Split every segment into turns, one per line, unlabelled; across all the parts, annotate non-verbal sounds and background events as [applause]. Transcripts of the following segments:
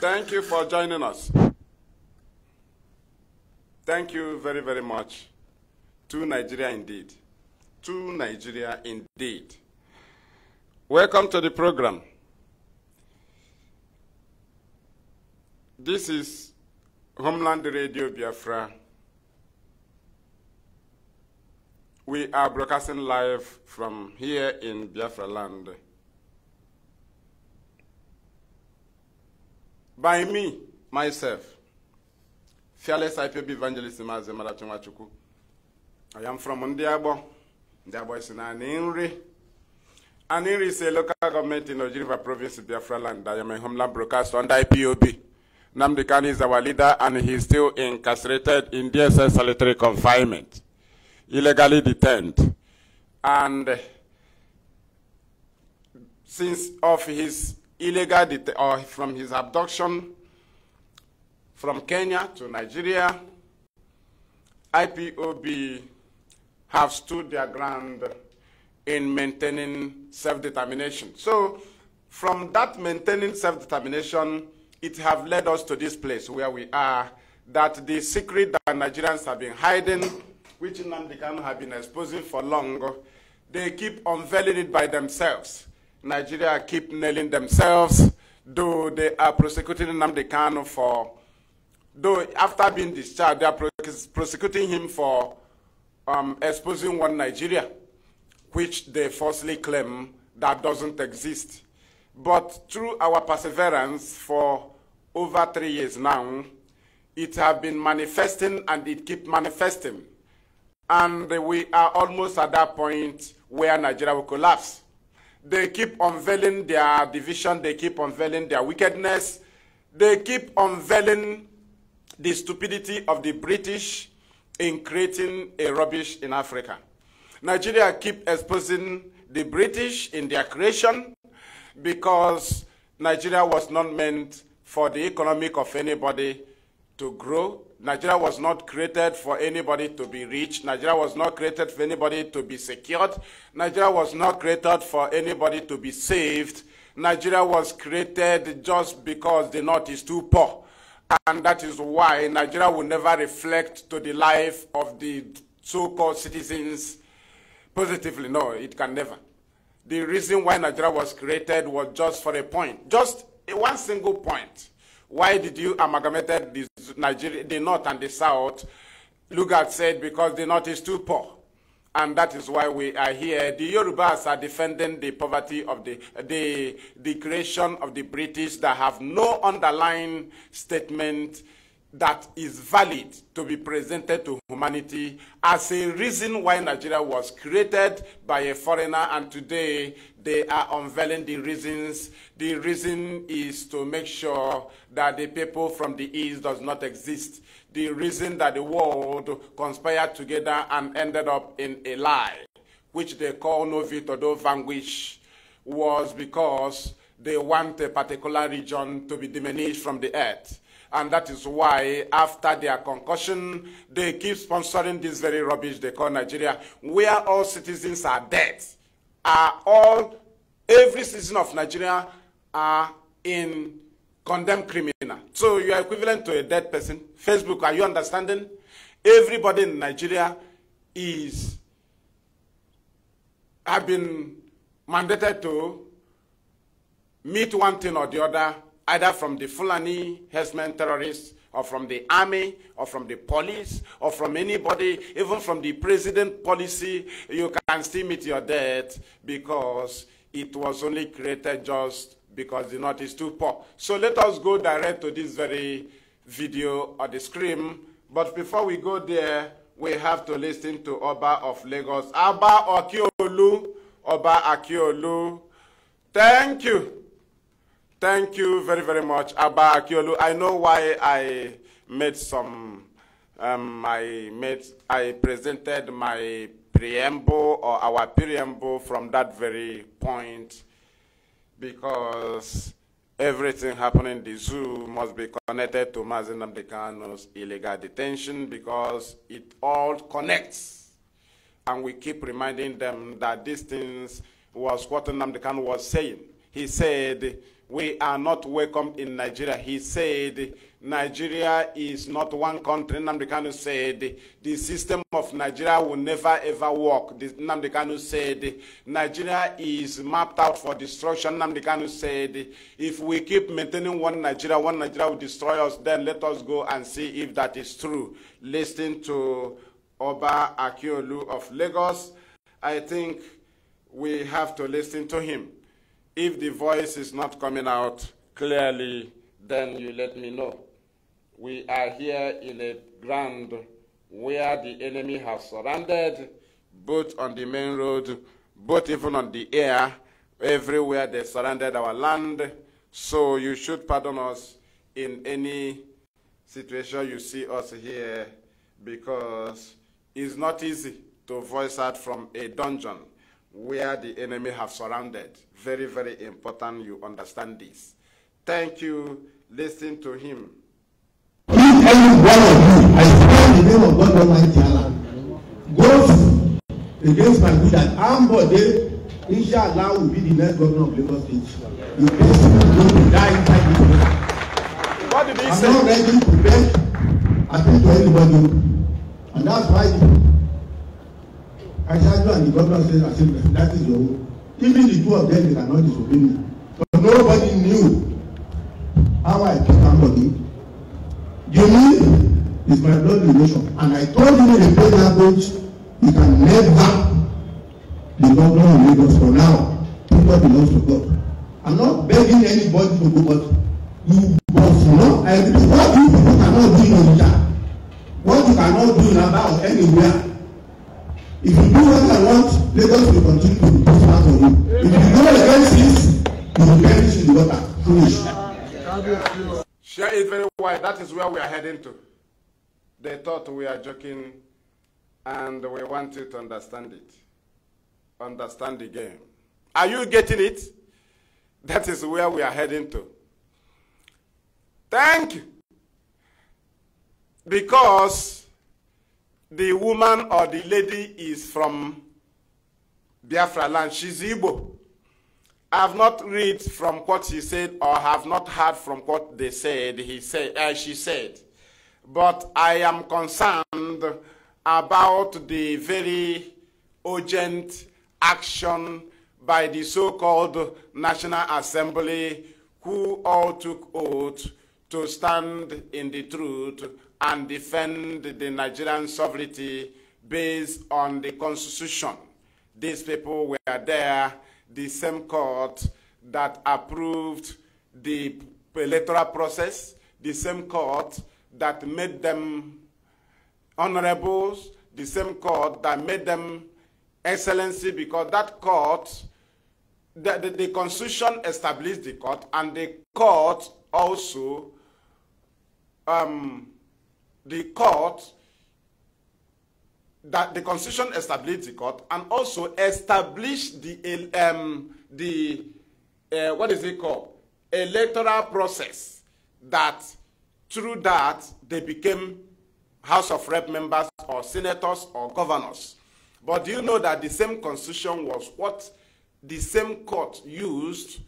Thank you for joining us. Thank you very, very much to Nigeria indeed. To Nigeria indeed. Welcome to the program. This is Homeland Radio Biafra. We are broadcasting live from here in Biafra land. by me, myself, fearless IPB evangelist Mazi Marachimwachuku. I am from Ndiabo. Ndiabo is in Aninri. Aninri is a local government in Ojiriva province, Biafra land. I am a homeland broadcaster under IPOB. Namdi Khan is our leader and he is still incarcerated in DSS solitary confinement, illegally detained. And since of his illegal or from his abduction from Kenya to Nigeria, IPOB have stood their ground in maintaining self-determination. So from that maintaining self-determination, it have led us to this place where we are, that the secret that Nigerians have been hiding, which Nnamdi Kanu have been exposing for long, they keep unveiling it by themselves. Nigeria keep nailing themselves, though they are prosecuting Namde Kano for, though after being discharged, they are prosecuting him for um, exposing one Nigeria, which they falsely claim that doesn't exist. But through our perseverance for over three years now, it has been manifesting and it keep manifesting. And we are almost at that point where Nigeria will collapse. They keep unveiling their division. They keep unveiling their wickedness. They keep unveiling the stupidity of the British in creating a rubbish in Africa. Nigeria keep exposing the British in their creation because Nigeria was not meant for the economic of anybody to grow Nigeria was not created for anybody to be rich. Nigeria was not created for anybody to be secured. Nigeria was not created for anybody to be saved. Nigeria was created just because the North is too poor. And that is why Nigeria will never reflect to the life of the so-called citizens positively. No, it can never. The reason why Nigeria was created was just for a point, just one single point. Why did you amalgamated the, Nigeria, the North and the South? Lugard said, because the North is too poor. And that is why we are here. The Yorubas are defending the poverty of the, the, the creation of the British that have no underlying statement that is valid to be presented to humanity as a reason why Nigeria was created by a foreigner and today they are unveiling the reasons. The reason is to make sure that the people from the east does not exist. The reason that the world conspired together and ended up in a lie, which they call no do vanquish, was because they want a particular region to be diminished from the earth And that is why, after their concussion, they keep sponsoring this very rubbish they call Nigeria, where all citizens are dead. Are all, every citizen of Nigeria are in condemned criminal. So you are equivalent to a dead person. Facebook, are you understanding? Everybody in Nigeria is, have been mandated to meet one thing or the other either from the Fulani herdsmen terrorists or from the army or from the police or from anybody, even from the president policy, you can still meet your death because it was only created just because the North is too poor. So let us go direct to this very video or the screen. But before we go there, we have to listen to Oba of Lagos. Oba Akiolu, Oba Akiolu. Thank you. Thank you very, very much, Abba Akiolu. I know why I made some, um, I, made, I presented my preamble or our preamble from that very point because everything happening in the zoo must be connected to Mazen Dekano's illegal detention because it all connects. And we keep reminding them that these things was what Namdekan was saying. He said, we are not welcome in Nigeria. He said, Nigeria is not one country. Nnamdi Kanu said, the system of Nigeria will never ever work. Nnamdi Kanu said, Nigeria is mapped out for destruction. Nnamdi Kanu said, if we keep maintaining one Nigeria, one Nigeria will destroy us. Then let us go and see if that is true. Listening to Oba Akiolu of Lagos. I think we have to listen to him. If the voice is not coming out clearly, then you let me know. We are here in a ground where the enemy has surrounded, both on the main road, both even on the air, everywhere they surrounded our land. So you should pardon us in any situation you see us here because it's not easy to voice out from a dungeon. where the enemy have surrounded. Very, very important you understand this. Thank you. Listen to him.
If any one of you, I stand in the name of God Almighty Allah, goes against my good and Ambode, Allah will be the next governor of Lagos State. You basically going die inside this room. What did he I'm say? I'm not ready to beg attention to anybody. And that's why aṣáájú and the governor said assembly that is your own even the two of them they cannot disobey me but nobody knew how I treat somebody Jimmy is my blood relation and I told him in a plain language He can never be governor of Lagos for now people belong to God I'm not begging anybody to go but you must know I repeat what you people cannot do in Onitsha what you cannot do in Aba or anywhere If you do what I want, Lagos will continue to improve part of you. If you go against this, you will perish in the water.
Finish. Share it very wide. That is where we are heading to. They thought we are joking and we want you to understand it. Understand the game. Are you getting it? That is where we are heading to. Thank you. Because the woman or the lady is from Biafra land. She's Igbo. I have not read from what she said or have not heard from what they said, he said, uh, she said. But I am concerned about the very urgent action by the so-called National Assembly who all took oath to stand in the truth and defend the Nigerian sovereignty based on the constitution. These people were there, the same court that approved the electoral process, the same court that made them honorables, the same court that made them excellency, because that court, the, the, the constitution established the court, and the court also um, the court that the constitution established the court and also established the um, the uh, what is it called electoral process that through that they became house of rep members or senators or governors but do you know that the same constitution was what the same court used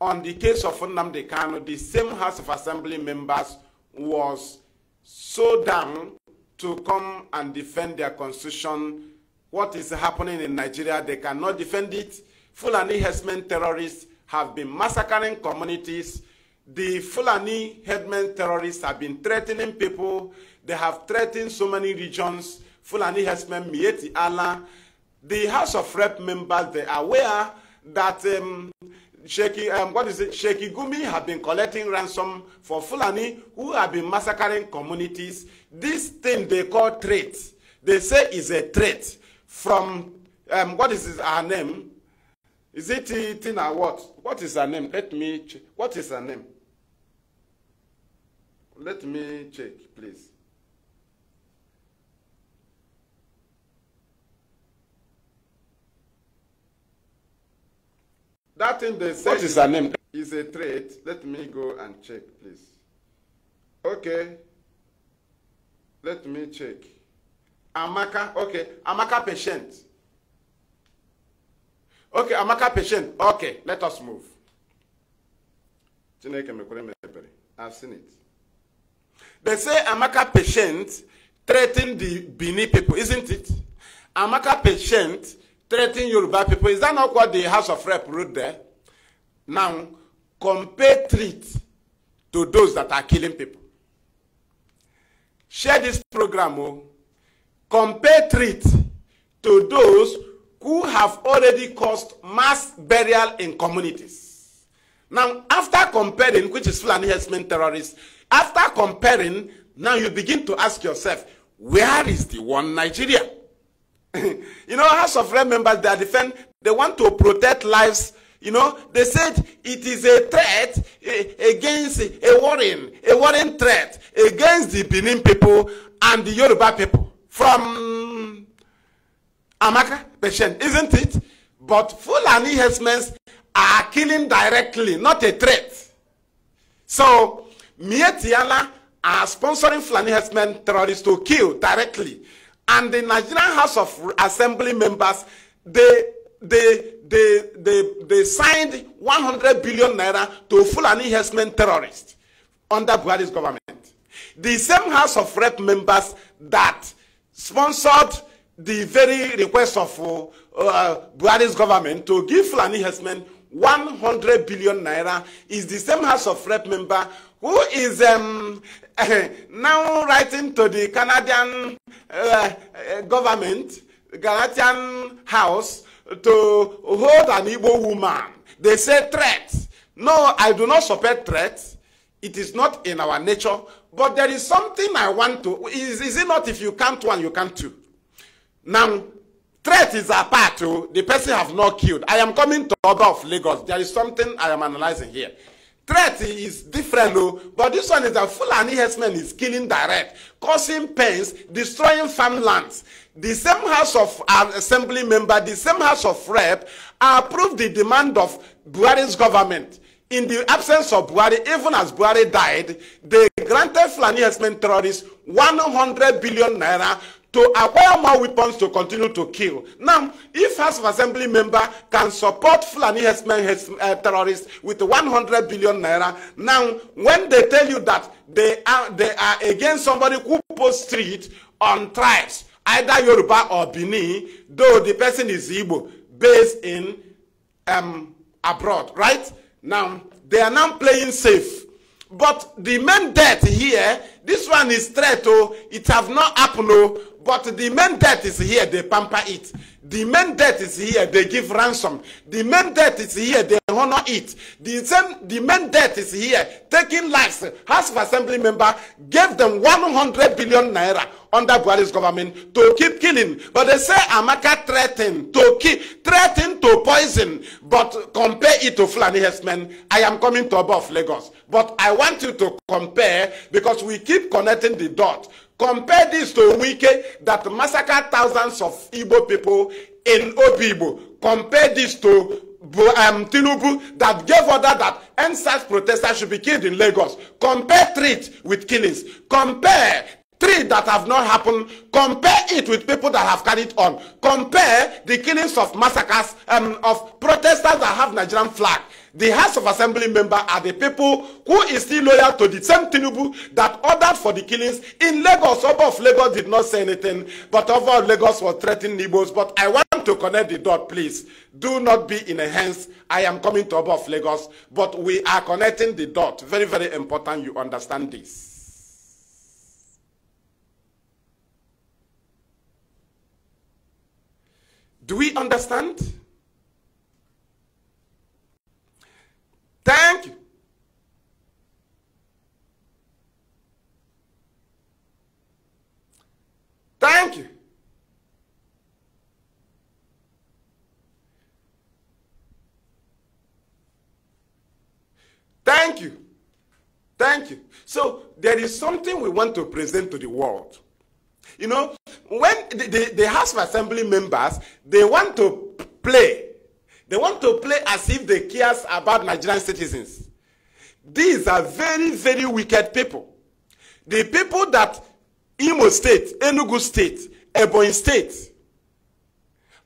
on the case of Nnamdi Kanu the same house of assembly members was so them to come and defend their constitution. What is happening in Nigeria, they cannot defend it. Fulani herdsmen terrorists have been massacring communities. The Fulani headmen terrorists have been threatening people. They have threatened so many regions. Fulani herdsmen, Mieti Allah. The House of Rep members, they are aware that um, Sheikh, um, what is it? Sheikh Gumi have been collecting ransom for Fulani who have been massacring communities. This thing they call trade. They say is a trade from, um, what is his, her name? Is it Tina what? What is her name? Let me check. What is her name? Let me check, please. That thing they said. What is her name? Is a trait. Let me go and check, please. Okay. Let me check. Amaka, okay. Amaka patient. Okay, Amaka patient. Okay, let us move. Chineke mekwere I've seen it. They say Amaka patient threatened the Bini people, isn't it? Amaka patient threatening Yoruba people. Is that not what the House of Rep wrote there? Now, compare treat to those that are killing people. Share this program. Oh. Compare treat to those who have already caused mass burial in communities. Now, after comparing, which is Fulani Hesman terrorists, after comparing, now you begin to ask yourself, where is the one Nigeria? [laughs] you know, House of Rep members, they are defend, they want to protect lives. You know, they said it is a threat eh, against eh, a warning, a warning threat against the Benin people and the Yoruba people from Amaka, Beshen, isn't it? But Fulani herdsmen are killing directly, not a threat. So, Mietiala are sponsoring Fulani herdsmen terrorists to kill directly and the Nigerian House of Assembly members, they they they they they signed 100 billion naira to Fulani herdsmen terrorists under Buhari's government. The same House of Rep members that sponsored the very request of uh, uh, Buhari's government to give Fulani herdsmen 100 billion naira is the same House of Rep member who is um, [laughs] now writing to the Canadian uh, uh government, Canadian house, to hold an Igbo woman. They say threats. No, I do not support threats. It is not in our nature. But there is something I want to. Is, is it not if you can't one, you can't two? Now, threat is a part. Oh, the person have not killed. I am coming to other of Lagos. There is something I am analyzing here. threat is different o oh. but this one is that fulani herdsmen is killing direct causing pains destroying farmlands the same house of uh, assembly member the same house of rep approve the demand of buhari's government in the absence of buhari even as buhari died they granted fulani herdsmen terrorists 100 billion naira to acquire more weapons to continue to kill. Now, if House of Assembly member can support Fulani herdsmen, uh, terrorists with 100 billion naira, now when they tell you that they are, they are against somebody who post street on tribes, either Yoruba or Bini, though the person is Igbo, based in um, abroad, right? Now, they are now playing safe. But the main debt here, this one is threat, oh, it have not happened, oh, But the main debt is here, they pamper it. The main debt is here, they give ransom. The main debt is here, they honor it. The same, the main debt is here, taking lives. House of Assembly member gave them 100 billion naira under Buhari's government to keep killing. But they say Amaka threatened to keep threatened to poison, but compare it to Fulani Hessman. I am coming to above Lagos. But I want you to compare because we keep connecting the dots. Compare this to Wike that massacred thousands of Igbo people in Obibo. Compare this to um, Tinubu that gave order that NSAS protesters should be killed in Lagos. Compare treat with killings. Compare three that have not happened. Compare it with people that have carried on. Compare the killings of massacres um, of protesters that have Nigerian flag. The House of Assembly member are the people who is still loyal to the same Tinubu that ordered for the killings in Lagos. Oba of Lagos did not say anything, but Oba Lagos was threatening Nibos. But I want to connect the dot, please. Do not be in a hands. I am coming to above Lagos, but we are connecting the dot. Very, very important you understand this. Do we understand? Thank you. Thank you. Thank you. Thank you. So there is something we want to present to the world. You know, when the, the, the House of Assembly members, they want to play they want to play as if they care about Nigerian citizens. These are very, very wicked people. The people that Imo State, Enugu State, Ebony State,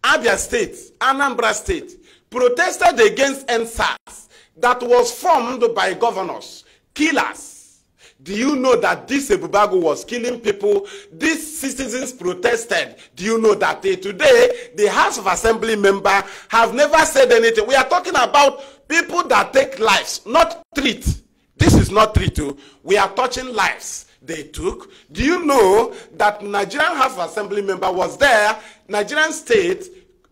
Abia State, Anambra State protested against NSAS that was formed by governors, killers, Do you know that this Ebubago was killing people? These citizens protested. Do you know that they, eh, today the House of Assembly member have never said anything? We are talking about people that take lives, not treat. This is not treat. Too. Oh. We are touching lives they took. Do you know that Nigerian House of Assembly member was there? Nigerian state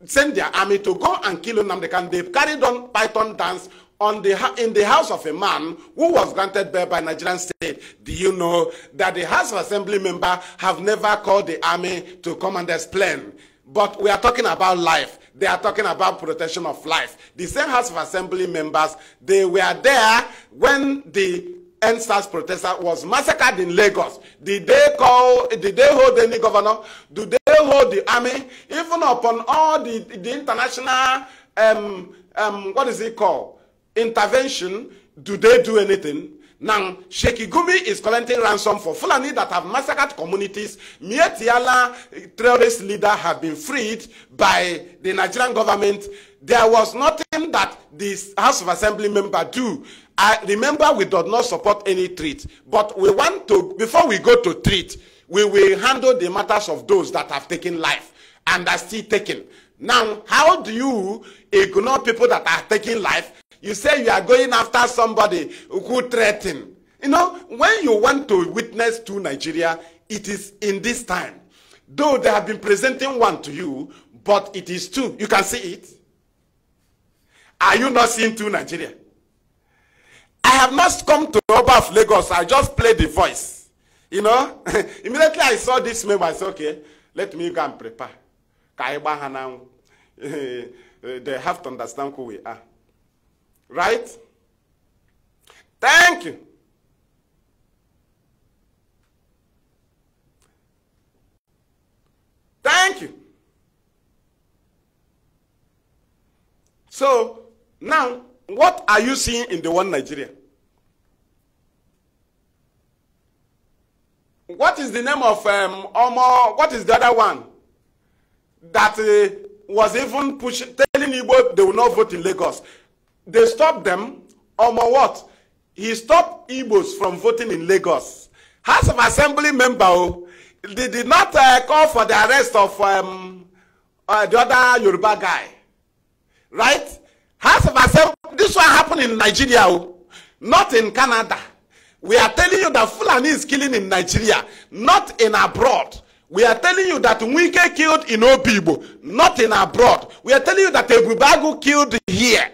sent their army to go and kill Nnamdi Kanu. They carried on python dance on the, in the house of a man who was granted birth by Nigerian state. Do you know that the House of Assembly member have never called the army to come and explain? But we are talking about life. They are talking about protection of life. The same House of Assembly members, they were there when the NSAS protester was massacred in Lagos. Did they call, did they hold any governor? Do they hold the army? Even upon all the, the international, um, um, what is it called? intervention, do they do anything? Now, Sheikh Gumi is collecting ransom for Fulani that have massacred communities. Mietiala eh, terrorist leader have been freed by the Nigerian government. There was nothing that this House of Assembly member do. I remember we do not support any treat, but we want to, before we go to treat, we will handle the matters of those that have taken life and are still taken. Now, how do you ignore people that are taking life You say you are going after somebody who threatened. You know, when you want to witness to Nigeria, it is in this time. Though they have been presenting one to you, but it is two. You can see it. Are you not seeing two Nigeria? I have not come to Oba of Lagos. I just played the voice. You know, [laughs] immediately I saw this member, I said, okay, let me go and prepare. [laughs] They have to understand who we are. Right? Thank you. Thank you. So, now, what are you seeing in the one Nigeria? What is the name of um, Omo? What is the other one that uh, was even pushing, telling Igbo they will not vote in Lagos? They stopped them, or more what? He stopped Igbos from voting in Lagos. House of Assembly member, oh, they did not uh, call for the arrest of um, uh, the other Yoruba guy. Right? House of Assembly, this one happened in Nigeria, oh, not in Canada. We are telling you that Fulani is killing in Nigeria, not in abroad. We are telling you that Nwike killed in Obibo, not in abroad. We are telling you that Ebubagu killed here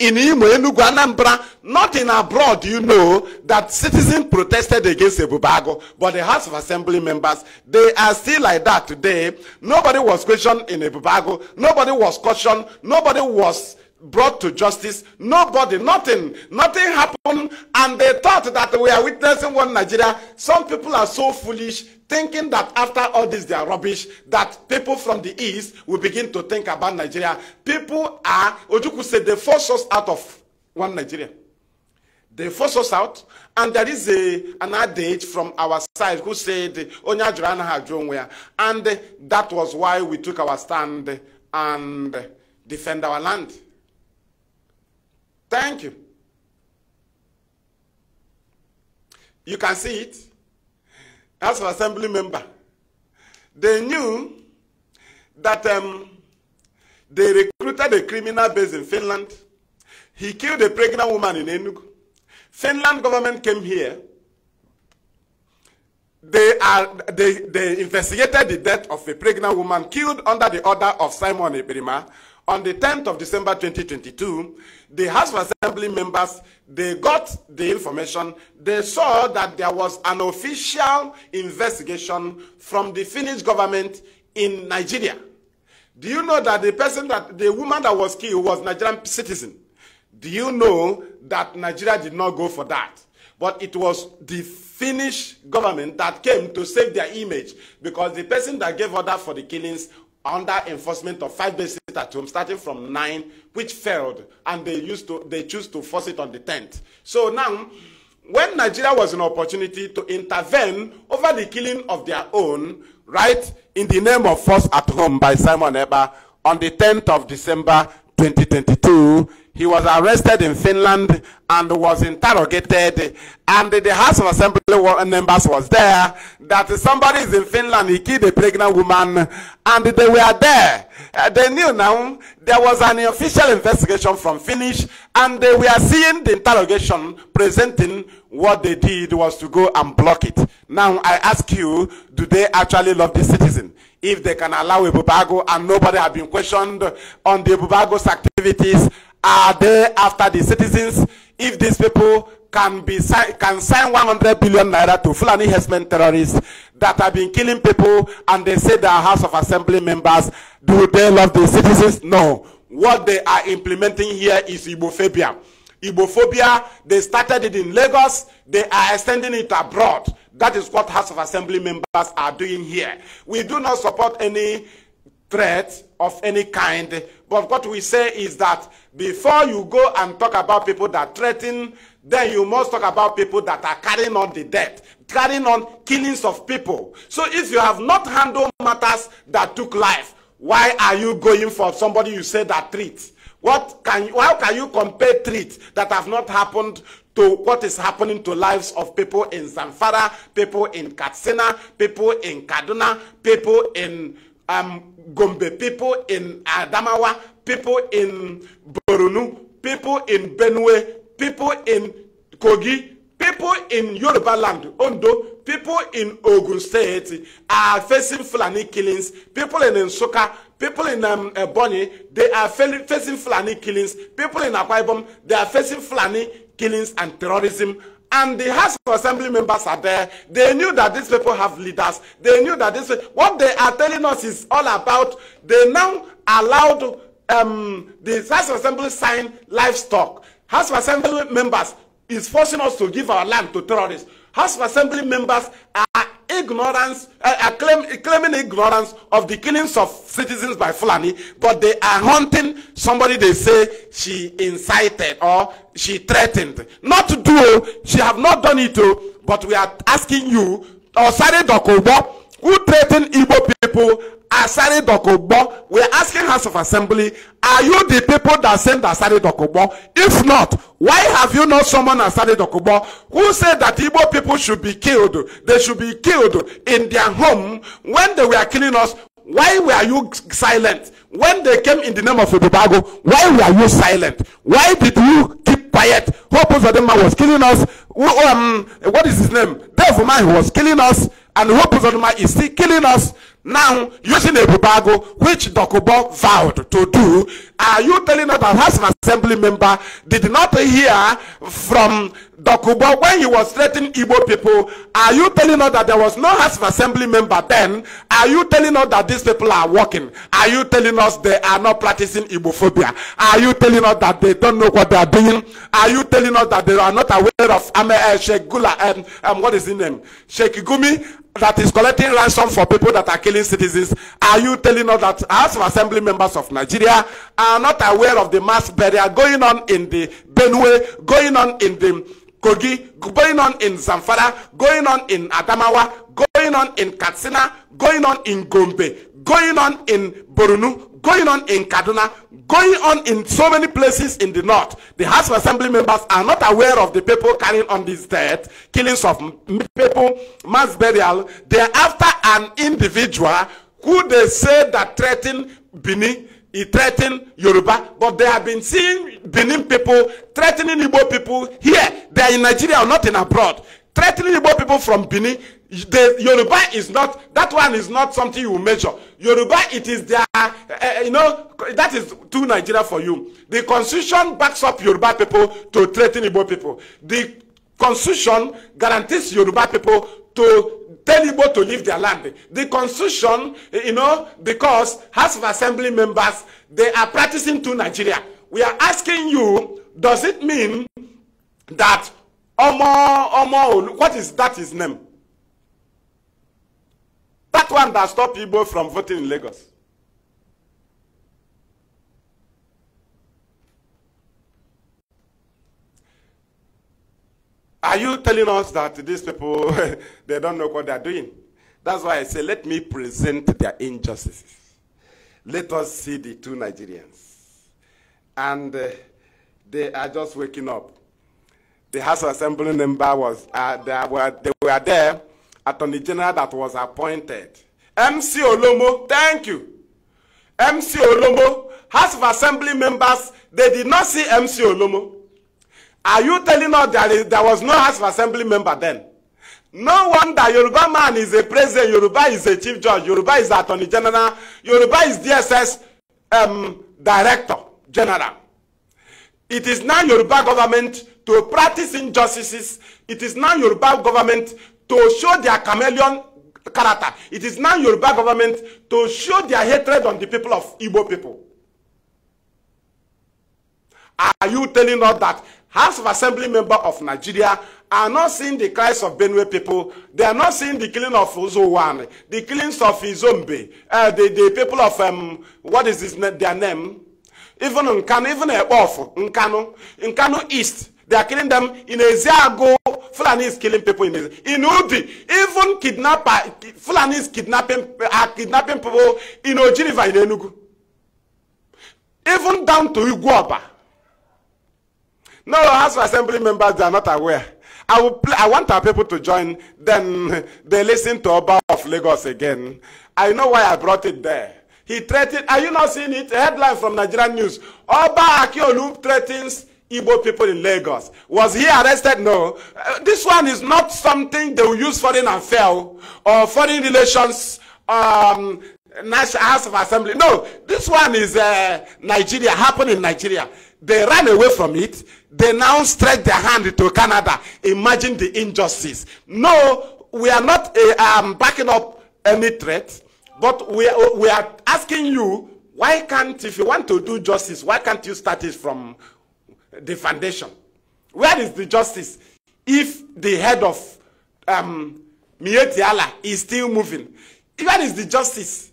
in Imo, Enugu, Anambra, not in abroad, you know, that citizens protested against Ebubago, but the House of Assembly members, they are still like that today. Nobody was questioned in Ebubago. Nobody was cautioned. Nobody was brought to justice. Nobody, nothing, nothing happened. And they thought that we are witnessing one Nigeria. Some people are so foolish, thinking that after all this, they are rubbish, that people from the East will begin to think about Nigeria. People are, Ojuku said, they force us out of one Nigeria. They force us out, and there is a, an adage from our side who said, Onya And that was why we took our stand and defend our land. Thank you. You can see it. As an assembly member, they knew that um, they recruited a criminal based in Finland. He killed a pregnant woman in Enugu. Finland government came here. They, are, they, they investigated the death of a pregnant woman killed under the order of Simon Eperima, on the 10th of December 2022, the House of Assembly members, they got the information. They saw that there was an official investigation from the Finnish government in Nigeria. Do you know that the person that, the woman that was killed was Nigerian citizen? Do you know that Nigeria did not go for that? But it was the Finnish government that came to save their image because the person that gave order for the killings under enforcement of five days at home starting from nine which failed and they used to they choose to force it on the tenth. so now when nigeria was an opportunity to intervene over the killing of their own right in the name of force at home by simon eba on the tenth of december twenty twenty-two. he was arrested in Finland and was interrogated. And the House of Assembly members was there that somebody is in Finland, he killed a pregnant woman, and they were there. Uh, they knew now there was an official investigation from Finnish, and they were seeing the interrogation presenting what they did was to go and block it. Now I ask you, do they actually love the citizen? If they can allow a Bubago and nobody have been questioned on the Bubago's activities are they after the citizens if these people can be can sign 100 billion naira to Fulani herdsmen terrorists that have been killing people and they say they are House of Assembly members? Do they love the citizens? No. What they are implementing here is Ibophobia. Ibophobia, they started it in Lagos, they are extending it abroad. That is what House of Assembly members are doing here. We do not support any threat of any kind But what we say is that before you go and talk about people that threaten, then you must talk about people that are carrying on the debt, carrying on killings of people. So if you have not handled matters that took life, why are you going for somebody you say that treats? What can you, how can you compare treats that have not happened to what is happening to lives of people in Zamfara, people in Katsina, people in Kaduna, people in um, Gombe, people in Adamawa, people in Borunu, people in Benue, people in Kogi, people in Yoruba land, Ondo, people in Ogun State are facing Fulani killings, people in Nsoka, people in um, eh, Ebonyi, they are facing Fulani killings, people in Akwa Ibom, they are facing Fulani killings and terrorism and the House of Assembly members are there. They knew that these people have leaders. They knew that this. What they are telling us is all about. They now allowed um, the House of Assembly sign livestock. House of Assembly members is forcing us to give our land to terrorists. House of Assembly members are ignorance, uh, claim, claiming ignorance of the killings of citizens by Fulani, but they are hunting somebody they say she incited or she threatened. Not to do, she have not done it, oh, but we are asking you, or Sare Dokobo, who threatened Igbo people, Asari Dokobo, we're asking House of Assembly, are you the people that sent Asari Dokobo? If not, why have you not summoned Asari Dokobo, who said that Igbo people should be killed? They should be killed in their home when they were killing us. Why were you silent? When they came in the name of Ibubago, why were you silent? Why did you keep quiet? Hope Uzodema was killing us. Um, what is his name? Devil man was killing us. and who Buzoduma is still killing us now using a bubago which Dokubo vowed to do. Are you telling us that as an assembly member did not hear from Dokubo when he was threatening Igbo people? Are you telling us that there was no House of assembly member then? Are you telling us that these people are working? Are you telling us they are not practicing Igbophobia? Are you telling us that they don't know what they are doing? Are you telling us that they are not aware of Ame uh, Sheikh Gula and um, um, what is his name? Sheikh Gumi that is collecting ransom for people that are killing citizens, are you telling us that House as of Assembly members of Nigeria are not aware of the mass burial going on in the Benue, going on in the Kogi, going on in Zamfara, going on in Adamawa, going on in Katsina, going on in Gombe, going on in Borunu, going on in Kaduna, going on in so many places in the north. The House of Assembly members are not aware of the people carrying on these death, killings of people, mass burial. They are after an individual who they say that threaten Bini, he threatened Yoruba, but they have been seeing Benin people threatening Igbo people here. They are in Nigeria or not in abroad. Threatening Igbo people from Benin, The Yoruba is not, that one is not something you measure. Yoruba, it is their, uh, you know, that is too Nigeria for you. The constitution backs up Yoruba people to threaten Igbo people. The constitution guarantees Yoruba people to tell Igbo to leave their land. The constitution, eh, you know, because House of Assembly members, they are practicing too Nigeria. We are asking you, does it mean that Omo, Omo, what is that his name? That one that stopped people from voting in Lagos. Are you telling us that these people, [laughs] they don't know what they're doing? That's why I say, let me present their injustices. Let us see the two Nigerians. And uh, they are just waking up. The House Assembly member was, uh, they, were, they were there Attorney General that was appointed. MC Olomo, thank you. MC Olomo, House of Assembly members, they did not see MC Olomo. Are you telling us that there was no House of Assembly member then? No wonder Yoruba man is a president, Yoruba is a chief judge, Yoruba is attorney general, Yoruba is DSS um, director general. It is now Yoruba government to practice injustices. It is now Yoruba government to show their chameleon character. It is now Yoruba government to show their hatred on the people of Igbo people. Are you telling us that House of Assembly member of Nigeria are not seeing the cries of Benue people? They are not seeing the killing of Uzowan, the killings of Izombe, uh, the, the people of, um, what is this, their name? Even Nkano, even Ekpof, Nkano, Nkano East, They are killing them. In Ezeago, Fulani is killing people in Ezeago. In Udi, even kidnapper, Fulani is kidnapping, are uh, kidnapping people in Ojiriva, in Enugu. Even down to Iguaba. No, House of Assembly members, they are not aware. I, will play, I want our people to join, then they listen to Oba of Lagos again. I know why I brought it there. He threatened, are you not seeing it? A headline from Nigerian News. Oba Akiolu threatens Igbo people in Lagos. Was he arrested? No. Uh, this one is not something they will use foreign affair or foreign relations um, National House of Assembly. No, this one is uh, Nigeria, happened in Nigeria. They ran away from it. They now stretch their hand to Canada. Imagine the injustice. No, we are not uh, um, backing up any threat, but we we are asking you, why can't, if you want to do justice, why can't you start it from the foundation? Where is the justice if the head of um, is still moving? Where is the justice?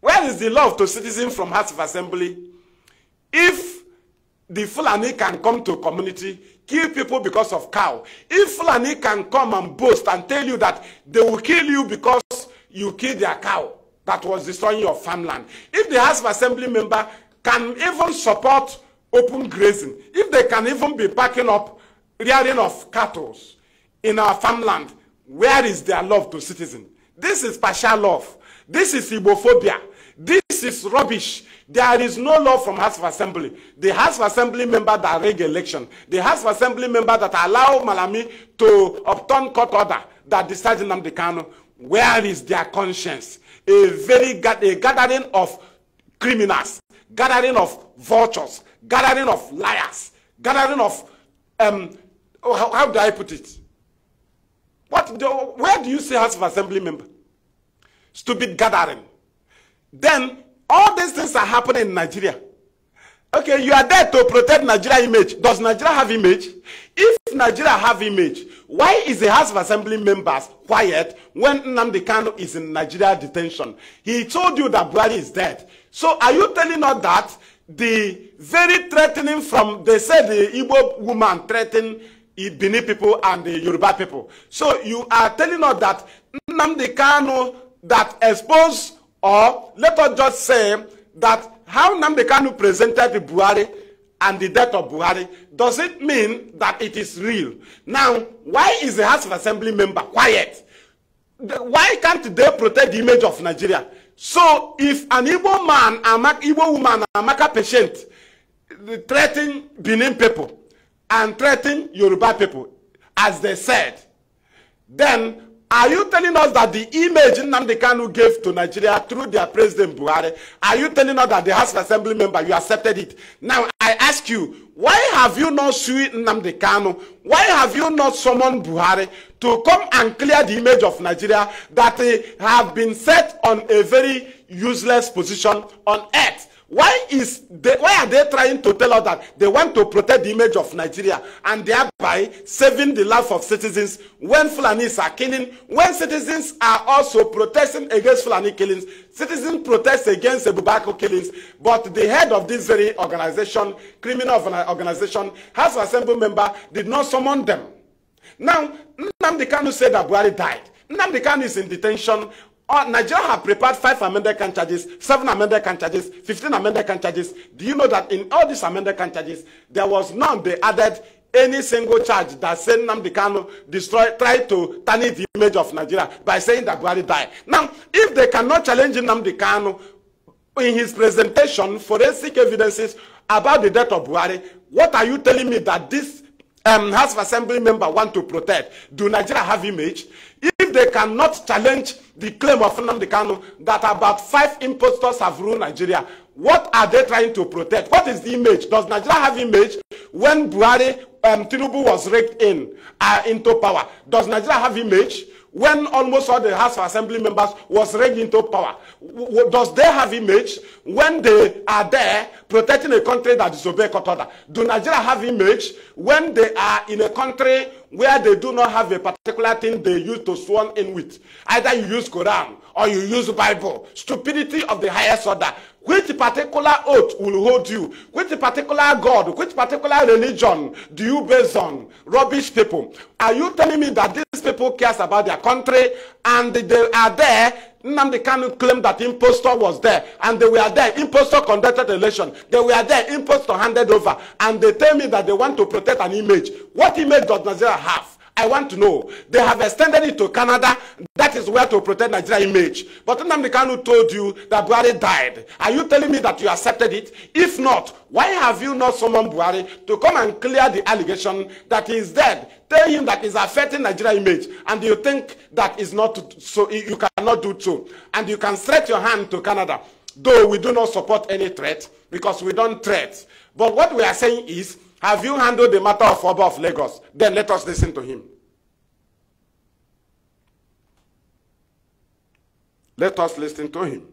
Where is the love to citizen from House of Assembly? If the Fulani can come to community, kill people because of cow. If Fulani can come and boast and tell you that they will kill you because you killed their cow that was destroying your farmland. If the House of Assembly member can even support open grazing, if they can even be packing up rearing of cattle in our farmland, where is their love to citizens? This is partial love. This is Ibophobia. This is rubbish. There is no law from House of Assembly. The House of Assembly member that rig election, the House of Assembly member that allow Malami to obtain court order that decides Nnamdi Kanu, where is their conscience? A very a gathering of criminals, gathering of vultures, gathering of liars, gathering of, um, oh, how, how do I put it? What do, where do you see House of Assembly member? Stupid gathering. Then all these things are happening in Nigeria. Okay, you are there to protect Nigeria image. Does Nigeria have image? If Nigeria have image, why is the House of Assembly members quiet when Nnamdi Kanu is in Nigeria detention? He told you that Buhari is dead. So are you telling us that the very threatening from they say the Igbo woman threatened Benin people and the Yoruba people. So you are telling us that Nnamdi Kanu that exposed or let us just say that how Nnamdi Kanu presented the Buhari and the death of Buhari does it mean that it is real? Now why is the House of Assembly member quiet? why can't they protect the image of Nigeria? So if an Igbo man, Amak, Igbo woman, Amaka patient threaten Benin people and threaten Yoruba people, as they said, then Are you telling us that the image Nnamdi Kanu gave to Nigeria through their president Buhari, are you telling us that the House of Assembly member, you accepted it? Now, I ask you, why have you not sued Nnamdi Kanu? Why have you not summoned Buhari to come and clear the image of Nigeria that they have been set on a very useless position on earth? why is they why are they trying to tell us that they want to protect the image of nigeria and thereby saving the life of citizens when fulanis are killing when citizens are also protesting against fulani killings citizens protest against ebubako killings but the head of this very organization criminal organization house of assembly member did not summon them now nnamdi kanu said that buhari died Nnamdi Kanu is in detention Oh, Nigeria have prepared five amended can charges, seven amended can charges, 15 amended can charges. Do you know that in all these amended can charges, there was none they added any single charge that said Nnamdi Kanu destroyed, tried to tarnish the image of Nigeria by saying that Buhari died. Now, if they cannot challenge Nnamdi Kanu in his presentation, forensic evidences about the death of Buhari, what are you telling me that this um, House of Assembly member want to protect? Do Nigeria have image? If they cannot challenge the claim of Nnamdi Kanu that about five impostors have ruled Nigeria. What are they trying to protect? What is the image? Does Nigeria have image when Buhari um, Tinubu was raked in uh, into power? Does Nigeria have image? when almost all the House of Assembly members was raised into power? W does they have image when they are there protecting a country that disobeys court order? Do Nigeria have image when they are in a country where they do not have a particular thing they use to sworn in with? Either you use Quran or you use Bible. Stupidity of the highest order. Which particular oath will hold you? Which particular God? Which particular religion do you base on? Rubbish people. Are you telling me that these people cares about their country and they are there Nnamdi Kanu claimed that impostor was there and they were there. Impostor conducted election. They were there. Impostor handed over. And they tell me that they want to protect an image. What image does Nigeria have? I want to know. They have extended it to Canada. That is where to protect Nigeria image. But Nnamdi Kanu told you that Buhari died. Are you telling me that you accepted it? If not, why have you not summoned Buhari to come and clear the allegation that he is dead? Tell him that he's affecting Nigeria image. And you think that is not so, you cannot do so. And you can stretch your hand to Canada. Though we do not support any threat because we don't threat. But what we are saying is Have you handled the matter of Oba of Lagos? Then let us listen to him. Let us listen to him.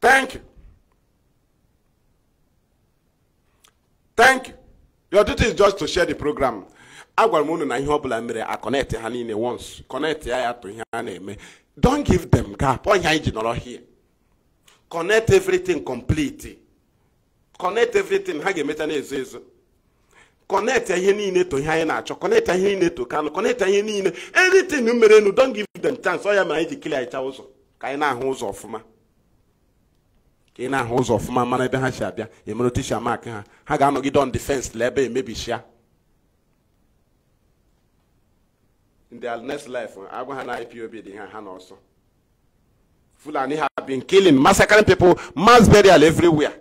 Thank you. Thank you. Your duty is just to share the program. agwara m unu na ihe ọbụla a connect ha niile once connect ya to ihe a don't give them gap ọ ihe anyị here connect everything complete connect everything ha ga-emeta na-ezo ezo connect ihe niile to ihe anyị na-achọ connect ihe niile to kanụ connect ihe niile anything mere nu don't give them chance ọ ya mere anyị ji kilia ịcha ụzọ ka anyị na-ahụ ụzọ ọfụma ka ị na-ahụ ụzọ ọfụma mara ebe ha si abịa emere otu si amak ha ha ga-anọgide on defense la ebe emebisia in their next life agwa ha na IPOB dị ha ha n'ọsọ Fulani have been killing, massacring people, mass burial everywhere.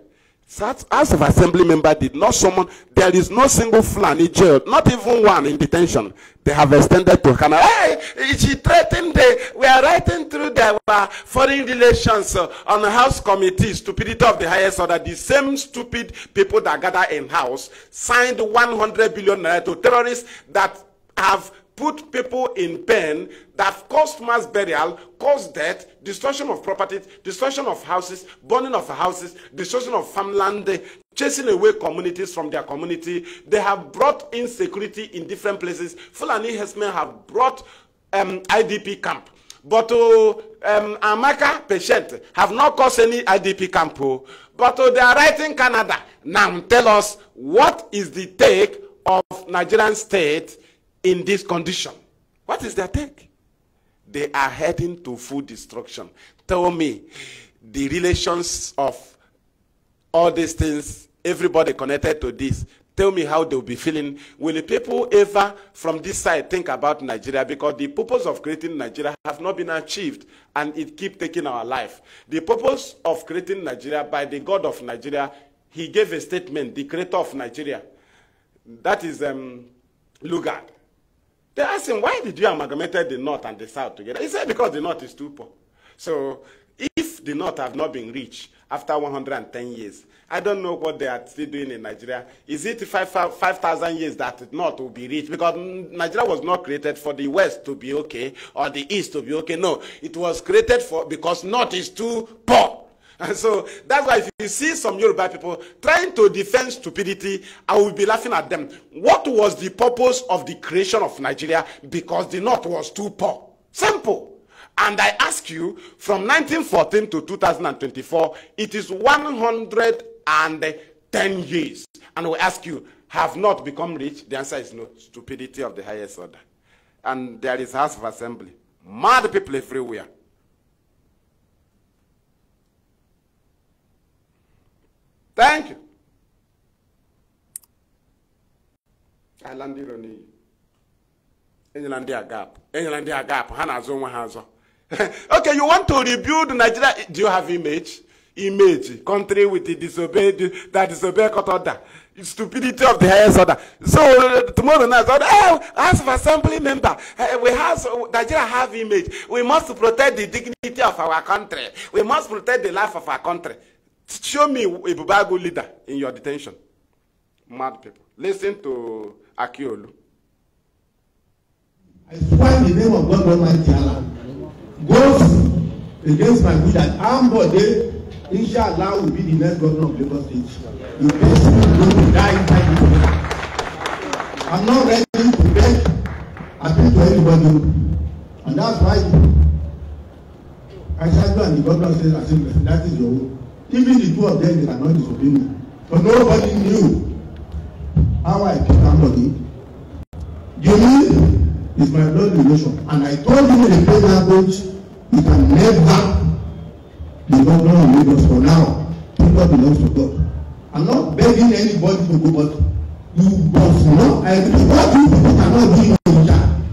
That House of Assembly member did not summon. There is no single Fulani jailed, not even one in detention. They have extended to Canada. Hey, she threatened. The, we are writing through the uh, foreign relations uh, on the House committee, stupidity of the highest order. The same stupid people that gather in House signed 100 billion to terrorists that have put people in pain that caused mass burial, caused death, destruction of property, destruction of houses, burning of houses, destruction of farmland, chasing away communities from their community. They have brought insecurity in different places. Fulani herdsmen have brought um, IDP camp. But uh, um, Amaka patient have not caused any IDP camp. Oh. But uh, they are writing Canada. Now tell us what is the take of Nigerian state in this condition. What is their take? They are heading to full destruction. Tell me the relations of all these things, everybody connected to this. Tell me how they'll be feeling. Will the people ever from this side think about Nigeria? Because the purpose of creating Nigeria have not been achieved and it keep taking our life. The purpose of creating Nigeria by the God of Nigeria, he gave a statement, the creator of Nigeria. That is um, Lugard. They ask him, why did you amalgamate the north and the south together? He said, because the north is too poor. So if the north have not been rich after 110 years, I don't know what they are still doing in Nigeria. Is it 5,000 5, 5, years that the north will be rich? Because Nigeria was not created for the west to be okay or the east to be okay. No, it was created for because north is too poor. And so that's why if you see some Yoruba people trying to defend stupidity, I will be laughing at them. What was the purpose of the creation of Nigeria? Because the North was too poor. Simple. And I ask you, from 1914 to 2024, it is 110 years. And we ask you, have not become rich? The answer is no. Stupidity of the highest order. And there is House of Assembly. Mad people everywhere. Thank you. I landed on you. England their gap. England their gap. Hanazo Wahazo. [laughs] Okay, you want to rebuild Nigeria? Do you have image? Image. Country with the disobeyed that disobey court order. Stupidity of the highest order. So uh, tomorrow night, oh, as an assembly member, uh, we have Nigeria have image. We must protect the dignity of our country. We must protect the life of our country. Show me a Bubago leader in your detention. Mad people. Listen to Akiolu.
I swear in the name of God Almighty Allah goes against my will that Ambode Inshallah will be the next governor of Lagos State. You basically who to die inside this place. I'm not ready to beg appeal to anybody. And that's why I said to the governor I said, that is your own. Even the two of them, they are not disobedient. But nobody knew how I picked somebody. Jimmy is my blood relation. And I told him in a plain language, you can never be governor of Lagos for now. People belongs to God. I'm not begging anybody to go, but you must know I, what you cannot do in Abuja,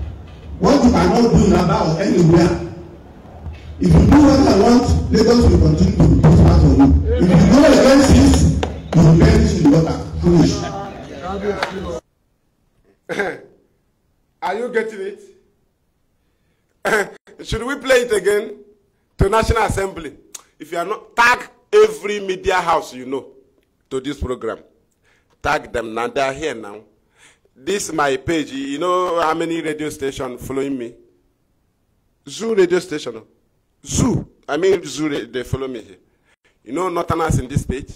what you cannot do in Aba or anywhere. If you do what I want, Lagos will continue to prosper for you. If you go against this, you will perish in water.
Foolish. [coughs] Are you getting it? [coughs] Should we play it again to National Assembly? If you are not, tag every media house you know to this program. Tag them now. They are here now. This my page. You know how many radio stations following me? Zoo radio station. Zoo. I mean, Zoo, they, they follow me here. You know else in this page?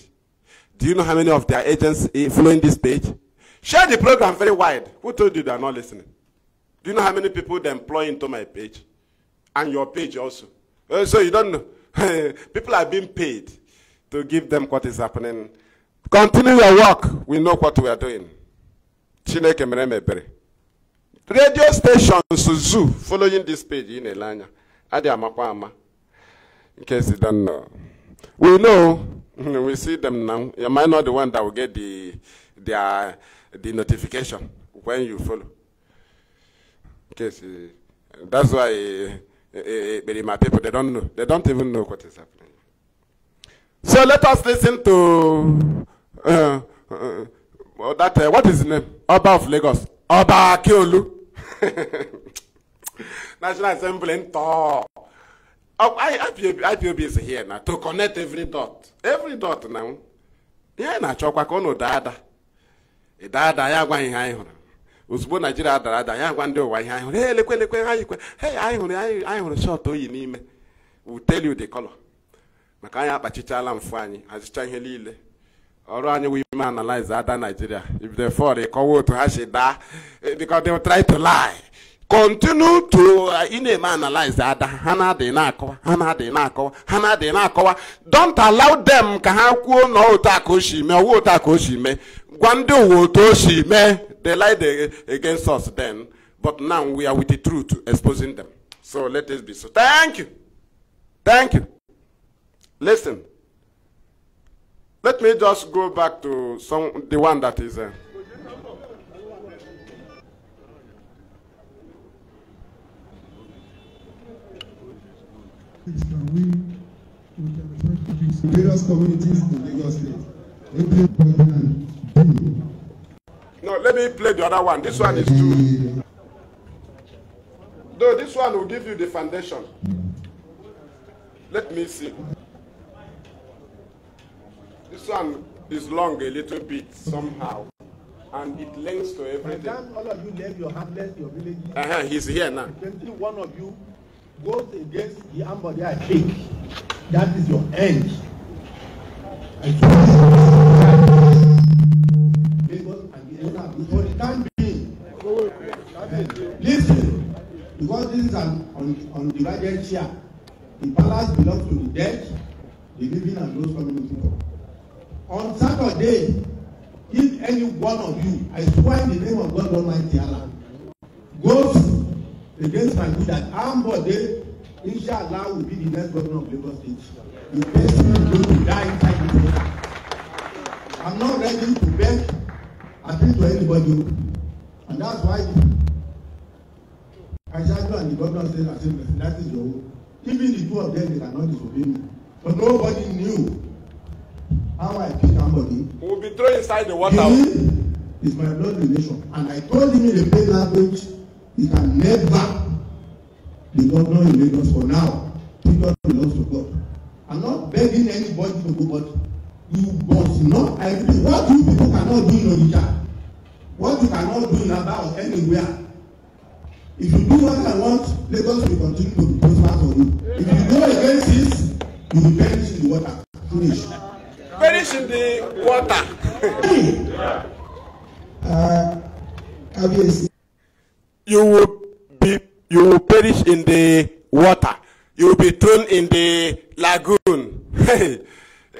Do you know how many of their agents eh, following this page? Share the program very wide. Who told you they are not listening? Do you know how many people they employ into my page? And your page also. Uh, so you don't know. [laughs] people are being paid to give them what is happening. Continue your work. We know what we are doing. Chineke meremebere. Radio stations zoo following this page in Elanya. Adi amakwa ama in case you don't know. We know, [laughs] we see them now. Am I not the one that will get the, the, uh, the notification when you follow? In case, you, eh, that's why uh, uh, my people, they don't know. They don't even know what is happening. So let us listen to uh, uh, uh that, uh, what is his name? Oba of Lagos. Oba Akiolu. [laughs] National Assembly in IPOB oh, is here now to connect every dot every dot now ihe na-achọkwa ka ụnụ daa ada ịda ya gwa ihe anyị hụrụ ozugbo naijiria dara ada ya gwa ndị ụwa ihe anyị hụrụ he lekwe lekwe anyị kwe hey anyị hụrụ anyị hụrụ shọt oyi n'ime we tell you the color maka anyị akpachichala mfu anyị hazicha ihe niile ọrụ anyị wụ ime analyze ada naijiria if they fall ịkọwa otu ha si da because they will try to lie continue to uh, ị na-eme the ada ha na-adịghị na-akọwa ha na-adịghị na don't allow them ka ha kwuo na otu aka o si mee ọwa otu aka o they lied against us then but now we are with the truth exposing them so let this be so thank you thank you listen let me just go back to some the one that is uh,
things that we we can refer Various communities in Lagos State.
No, let me play the other one. This one is too. Though this one will give you the foundation. Let me see. This one is long a little bit somehow, and it links to everything. By
all of you left your hamlet, your village.
Uh -huh, he's here now.
Twenty-one of you goes against the ambody I take,
that is your end. And so,
and the elder before the time being. Listen, because this is an un, undivided chair. The palace belongs to the dead, the living, and those coming to people. On Saturday, if any one of you, I swear in the name of God Almighty Allah, goes against my will that Ambode, inshallah, will be the next governor of Lagos State. The person is going to die inside the water. I'm not ready to beg appeal to anybody. And that's why Kajadu and the governor said the same person. That is your own. Even the two of them, they cannot disobey me. But nobody knew how I killed somebody. We'll be thrown inside the water. He is my blood relation. And I told him in the plain language. You can never be governor in Lagos for now. Kingdom belongs to God. I'm not begging anybody to go, but you must not agree. What you people cannot do in Onitsha, what you cannot do in Aba or anywhere. If you do what I want, Lagos will continue to be prosperous for you. If you go against this, you will perish in the water. Finish. Perish
in the water. Obviously. Hmm. Uh, you will be you will perish in the water. You will be thrown in the lagoon. [laughs]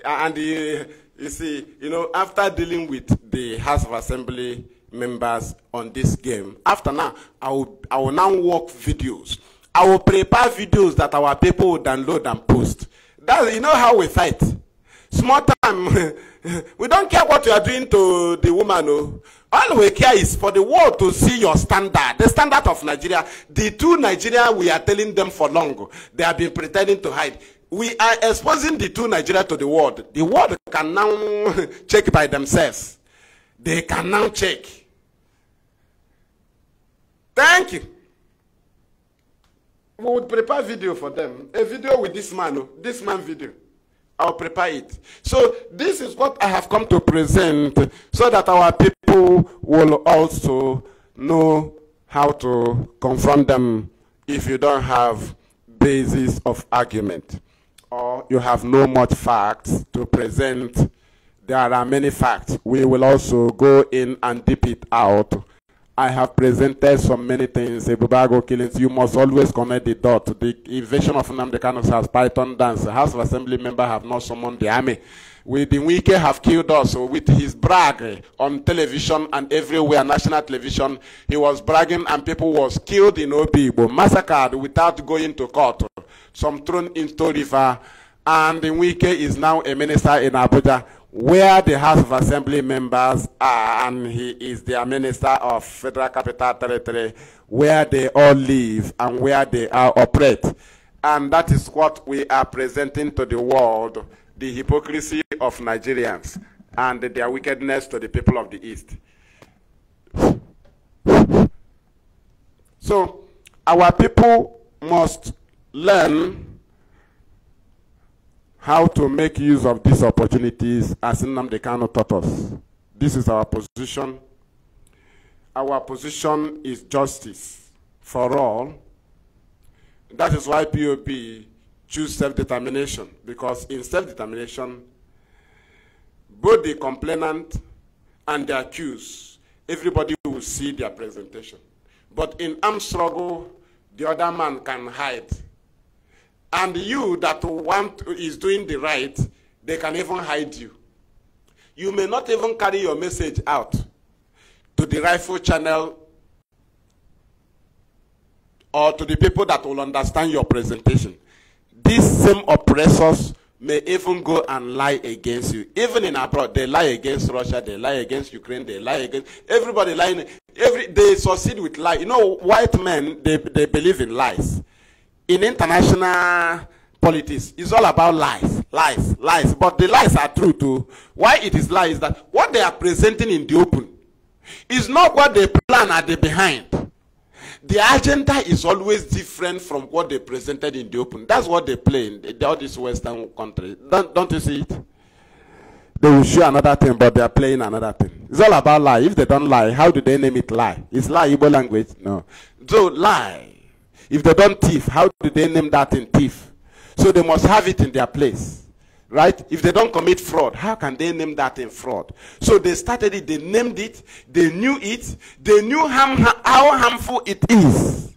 and uh, you see, you know, after dealing with the House of Assembly members on this game, after now, I will, I will now work videos. I will prepare videos that our people will download and post. That, you know how we fight. Small time. [laughs] we don't care what you are doing to the woman. Oh. All we care is for the world to see your standard, the standard of Nigeria. The two Nigeria we are telling them for long, they have been pretending to hide. We are exposing the two Nigeria to the world. The world can now [laughs] check by themselves. They can now check. Thank you. We would prepare video for them. A video with this man, oh, this man video. I'll prepare it. So this is what I have come to present so that our people will also know how to confront them if you don't have basis of argument or you have no much facts to present. There are many facts. We will also go in and deep it out I have presented so many things, Ebubago killings, you must always connect the dot. The invasion of Namdekanos has python dance. The House of Assembly member have not summoned the army. With the Wike have killed us with his brag on television and everywhere, national television. He was bragging and people was killed in but massacred without going to court. Some thrown into river and the Wike is now a minister in Abuja where the House of Assembly members are, and he is their Minister of Federal Capital Territory, where they all live and where they are operate. And that is what we are presenting to the world, the hypocrisy of Nigerians and their wickedness to the people of the East. So, our people must learn how to make use of these opportunities as Nnamdi Kano taught us. This is our position. Our position is justice for all. That is why POP choose self-determination, because in self-determination, both the complainant and the accused, everybody will see their presentation. But in armed struggle, the other man can hide and you that want is doing the right, they can even hide you. You may not even carry your message out to the rifle channel or to the people that will understand your presentation. These same oppressors may even go and lie against you. Even in abroad, they lie against Russia, they lie against Ukraine, they lie against everybody lying. Every, they succeed with lie. You know, white men, they, they believe in lies in international politics is all about lies, lies, lies. But the lies are true too. Why it is lies is that what they are presenting in the open is not what they plan at the behind. The agenda is always different from what they presented in the open. That's what they play in the, all these Western countries. Don't, don't you see it? They will show another thing, but they are playing another thing. It's all about lie. If they don't lie, how do they name it lie? Is lie Igbo language? No. So lie. If they don't thief, how do they name that in thief? So they must have it in their place. Right? If they don't commit fraud, how can they name that in fraud? So they started it, they named it, they knew it, they knew how, how harmful it is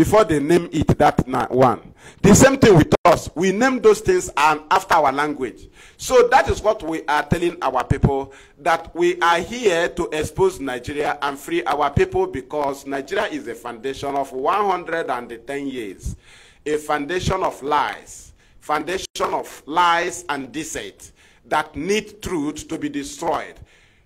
before they name it that one. The same thing with us. We name those things and after our language. So that is what we are telling our people that we are here to expose Nigeria and free our people because Nigeria is a foundation of 110 years, a foundation of lies, foundation of lies and deceit that need truth to be destroyed.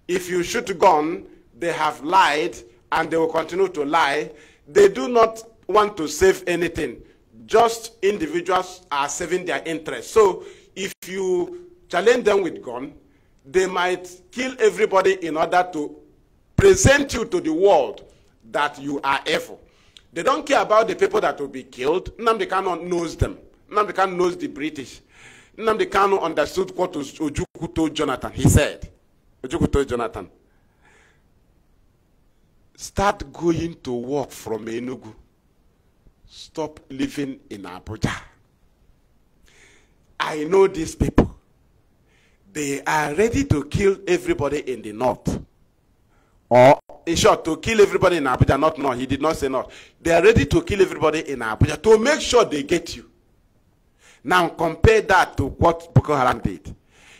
If you shoot gun, they have lied and they will continue to lie. They do not want to save anything. Just individuals are saving their interest. So if you challenge them with gun, they might kill everybody in order to present you to the world that you are evil. They don't care about the people that will be killed. Nnamdi Kanu knows them. Nnamdi Kanu knows the British. Nnamdi Kanu understood what Ojukwu told Jonathan. He said, Ojukwu told Jonathan, start going to work from Enugu stop living in Abuja. I know these people. They are ready to kill everybody in the north. Or, in short, to kill everybody in Abuja, not north. He did not say north. They are ready to kill everybody in Abuja to make sure they get you. Now, compare that to what Boko Haram did.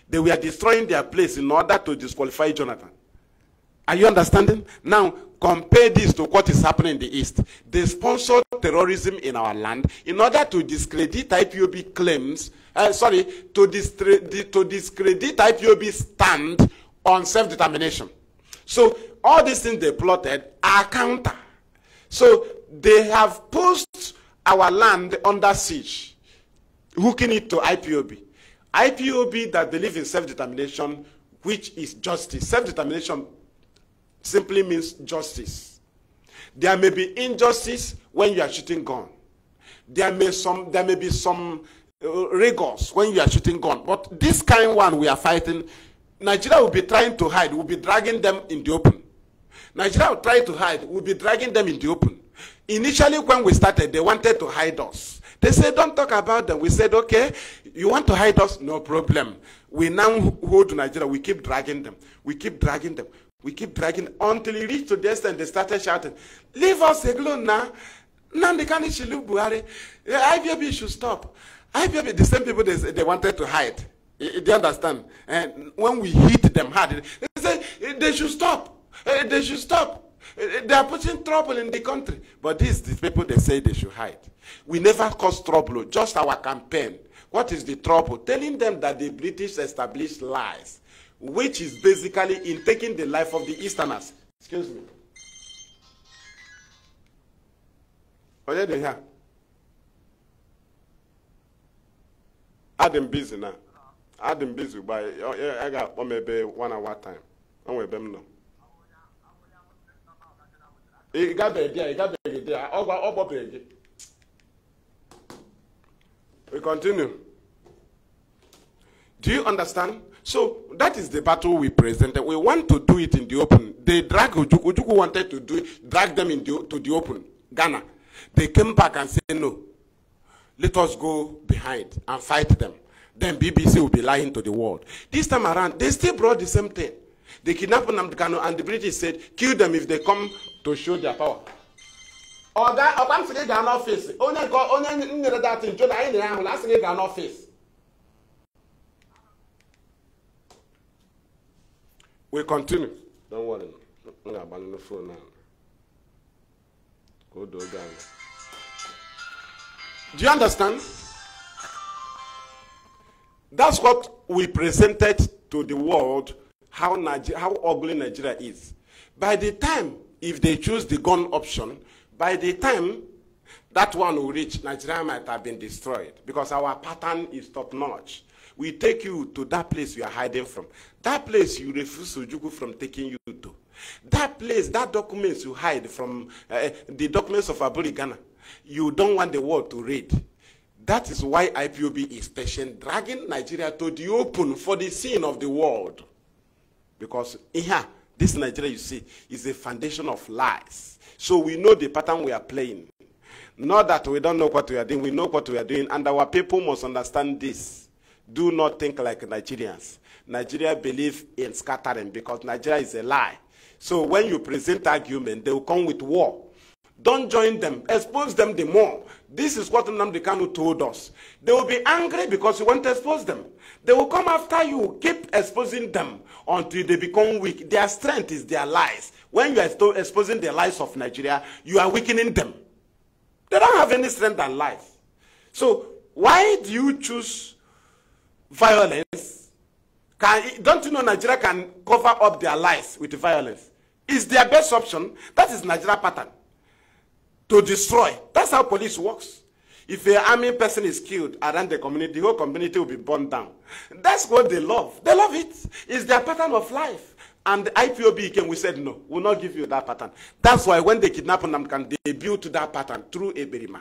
They were destroying their place in order to disqualify Jonathan. Are you understanding? Now, compare this to what is happening in the East. They sponsor terrorism in our land in order to discredit IPOB claims, uh, sorry, to, discredit, to discredit stand on self-determination. So all these things they plotted are counter. So they have pushed our land under siege, hooking it to IPOB. IPOB that believe in self-determination, which is justice. Self-determination simply means justice. There may be injustice when you are shooting gun. There may some there may be some uh, rigors when you are shooting gun. But this kind one we are fighting, Nigeria will be trying to hide. We'll be dragging them in the open. Nigeria will try to hide. We'll be dragging them in the open. Initially, when we started, they wanted to hide us. They said, don't talk about them. We said, okay, you want to hide us? No problem. We now hold Nigeria. We keep dragging them. We keep dragging them. We keep dragging until he reached to this and they started shouting, Leave us alone now. Nnamdi Kanu should should stop. IBB, the same people they, they wanted to hide. Do you understand? And when we hit them hard, they say eh, they should stop. Eh, they should stop. Eh, they are putting trouble in the country. But these these people they say they should hide. We never cause trouble, just our campaign. What is the trouble? Telling them that the British established lies. which is basically in taking the life of the Easterners. Excuse me. What are they here? Adam busy now. Adam busy by I got one maybe one hour time. I'm with them now. He got the idea. He got the idea. All about up about the We continue. Do you understand? So that is the battle we presented. We want to do it in the open. They drag Ujuku, Ujuku wanted to do it, drag them into the, the open, Ghana. They came back and said, no, let us go behind and fight them. Then BBC will be lying to the world. This time around, they still brought the same thing. They kidnapped Nnamdi Kanu and the British said, kill them if they come to show their power. Ọ ga-akpamsị gị gaa n'ọfịs onye nyere datin jụrụ anyị I'm not asị gị gaa n'ọfịs We continue. Don't worry. I'm going to abandon the phone now. Go do it Do you understand? That's what we presented to the world how, Niger how ugly Nigeria is. By the time, if they choose the gun option, by the time that one will reach, Nigeria might have been destroyed because our pattern is top notch we take you to that place you are hiding from. That place you refuse Sujuku from taking you to. That place, that documents you hide from, uh, the documents of Aburi Ghana, you don't want the world to read. That is why IPOB is patient, dragging Nigeria to the open for the sin of the world. Because yeah, this Nigeria you see is a foundation of lies. So we know the pattern we are playing. Not that we don't know what we are doing, we know what we are doing, and our people must understand this do not think like Nigerians. Nigeria believe in scattering because Nigeria is a lie. So when you present argument, they will come with war. Don't join them. Expose them the more. This is what Nnamdi Kanu told us. They will be angry because you want to expose them. They will come after you. Keep exposing them until they become weak. Their strength is their lies. When you are exposing the lies of Nigeria, you are weakening them. They don't have any strength and life. So why do you choose violence. Can, don't you know Nigeria can cover up their lies with violence? It's their best option. That is Nigeria pattern. To destroy. That's how police works. If an army person is killed around the community, the whole community will be burned down. That's what they love. They love it. It's their pattern of life. And the IPOB came, we said, no, we'll not give you that pattern. That's why when they them, can they build that pattern through a Eberima.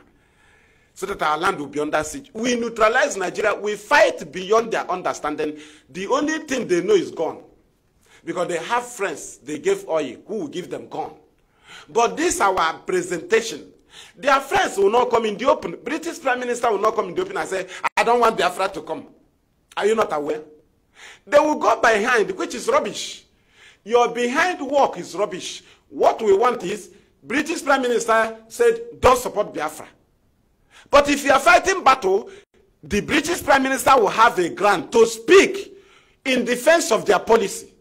so that our land will be under siege. We neutralize Nigeria. We fight beyond their understanding. The only thing they know is gone. Because they have friends they gave oil who will give them gone. But this our presentation. Their friends will not come in the open. British Prime Minister will not come in the open and say, I don't want Biafra to come. Are you not aware? They will go behind, which is rubbish. Your behind work is rubbish. What we want is, British Prime Minister said, don't support Biafra. But if you are fighting battle, the British Prime Minister will have a grant to speak in defense of their policy.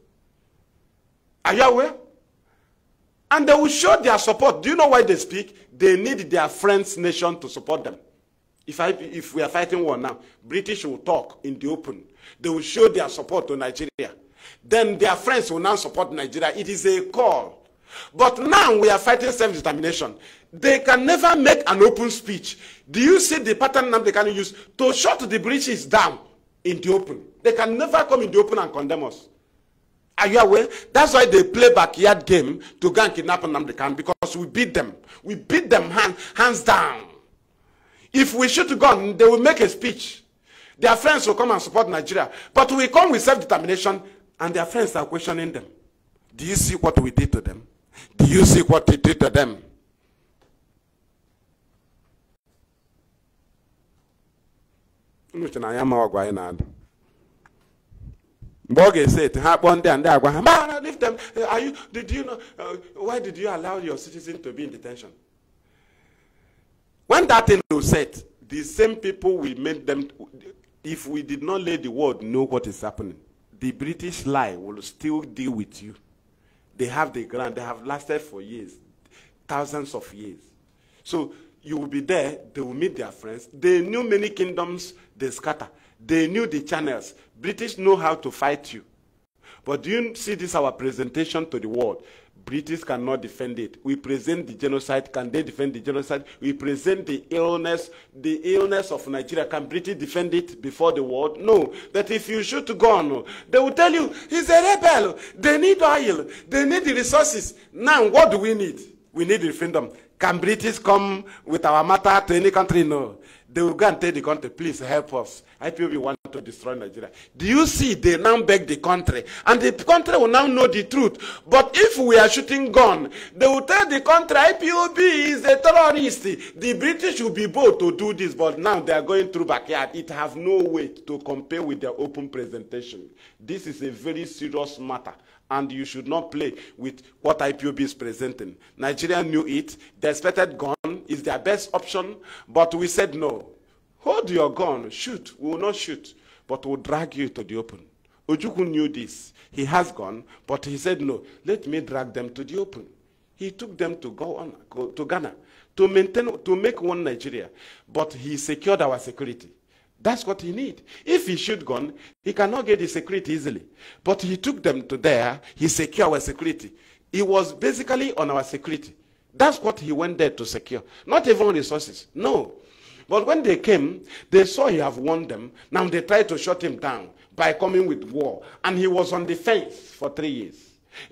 Are you aware? And they will show their support. Do you know why they speak? They need their friends' nation to support them. If, I, if we are fighting war now, British will talk in the open. They will show their support to Nigeria. Then their friends will now support Nigeria. It is a call but now we are fighting self-determination. They can never make an open speech. Do you see the pattern now they can use to shut the breaches down in the open? They can never come in the open and condemn us. Are you aware? That's why they play backyard game to go and kidnap Nnamdi Kanu because we beat them. We beat them hand, hands down. If we shoot a gun, they will make a speech. Their friends will come and support Nigeria. But we come with self-determination and their friends are questioning them. Do you see what we did to them? Do you see what he did to them? Which na ya ma ọgwa anyị na-adụ one day and ga-ese eti ha kpọọ them are you did you know uh, why did you allow your citizen to be in detention when that thing was said, the same people we made them if we did not let the world know what is happening the british lie will still deal with you they have the ground. They have lasted for years, thousands of years. So you will be there. They will meet their friends. They knew many kingdoms. They scatter. They knew the channels. British know how to fight you. But do you see this, our presentation to the world? British cannot defend it. We present the genocide. Can they defend the genocide? We present the illness, the illness of Nigeria. Can British defend it before the world? No. That if you shoot gun, they will tell you, he's a rebel. They need oil. They need the resources. Now, what do we need? We need the freedom. Can British come with our matter to any country? No. They will go and tell the country, please help us. IPOB want to destroy Nigeria. Do you see they now beg the country? And the country will now know the truth. But if we are shooting gun, they will tell the country IPOB is a terrorist. The British will be bold to do this, but now they are going through backyard. It has no weight to compare with their open presentation. This is a very serious matter and you should not play with what IPOB is presenting. Nigeria knew it. The expected gun is their best option, but we said no. Hold your gun, shoot. We will not shoot, but we'll drag you to the open. Ojukwu knew this. He has gone, but he said no. Let me drag them to the open. He took them to go on go to Ghana to maintain to make one Nigeria, but he secured our security. That's what he need. If he shoot gun, he cannot get the security easily. But he took them to there. He secure our security. He was basically on our security. That's what he went there to secure. Not even resources. No. But when they came, they saw he have won them. Now they tried to shut him down by coming with war. And he was on defense for three years.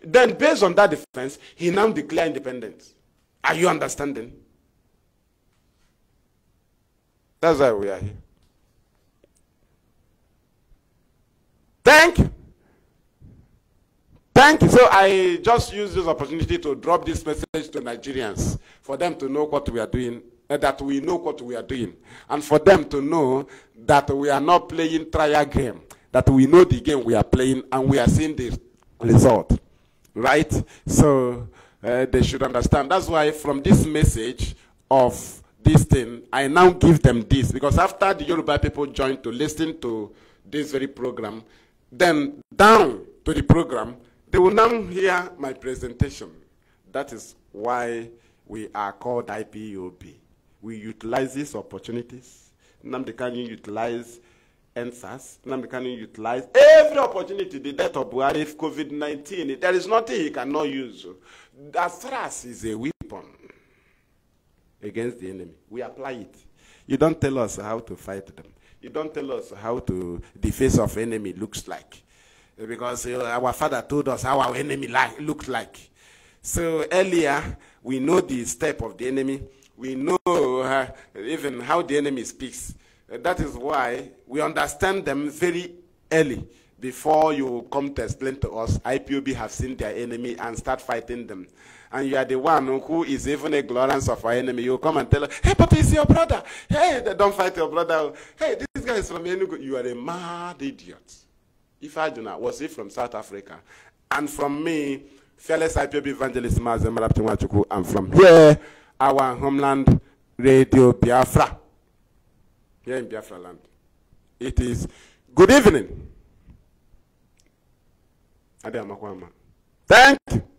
Then based on that defense, he now declared independence. Are you understanding? That's why we are here. Thank. Thank. So I just use this opportunity to drop this message to Nigerians for them to know what we are doing, uh, that we know what we are doing, and for them to know that we are not playing trial game, that we know the game we are playing and we are seeing the result. Right? So uh, they should understand. That's why from this message of this thing, I now give them this because after the Yoruba people joined to listen to this very program, then down to the program, they will now hear my presentation. That is why we are called IPOB. We utilize these opportunities. Namdi Kanu utilize answers. Namdi Kanu utilize every opportunity, the death of Buhari, COVID-19. There is nothing he cannot use. As stress is a weapon against the enemy, we apply it. You don't tell us how to fight them. You don't tell us how to the face of enemy looks like, because our father told us how our enemy like looked like. So earlier we know the step of the enemy. We know uh, even how the enemy speaks. That is why we understand them very early before you come to explain to us IPOB have seen their enemy and start fighting them and you are the one who is even a glorious of our enemy, you come and tell her, hey, but is your brother. Hey, don't fight your brother. Hey, this guy is from Enugu. You are a mad idiot. If I do not, was he from South Africa? And from me, fearless IPB evangelist Mazem Raptimwachuku, and from here, our homeland, Radio Biafra. Here in Biafra land. It is good evening. Ade Amakwama. Thank you.